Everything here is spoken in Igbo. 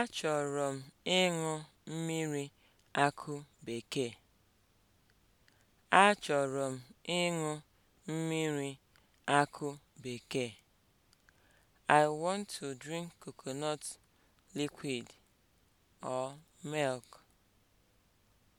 Achọrọ m ịṅụ mmiri akụ bekee. bekee. I want to drink coconut liquid or milk.